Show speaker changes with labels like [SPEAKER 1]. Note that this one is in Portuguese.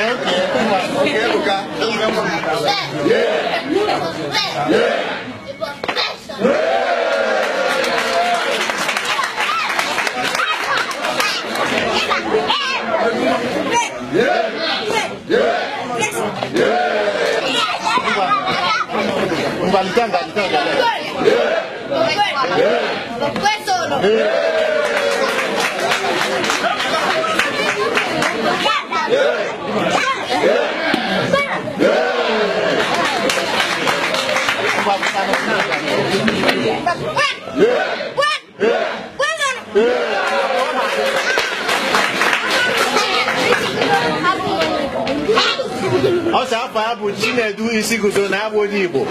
[SPEAKER 1] karaokê, qualquer lugar, pelo menos na minha casa. Yeah! Yeah!
[SPEAKER 2] Valentanga, Valentanga.
[SPEAKER 3] Due solo.
[SPEAKER 4] vai votar no
[SPEAKER 5] Ọ sọ afọ abụ Chinedu isi guzo na abụ onye Igbo.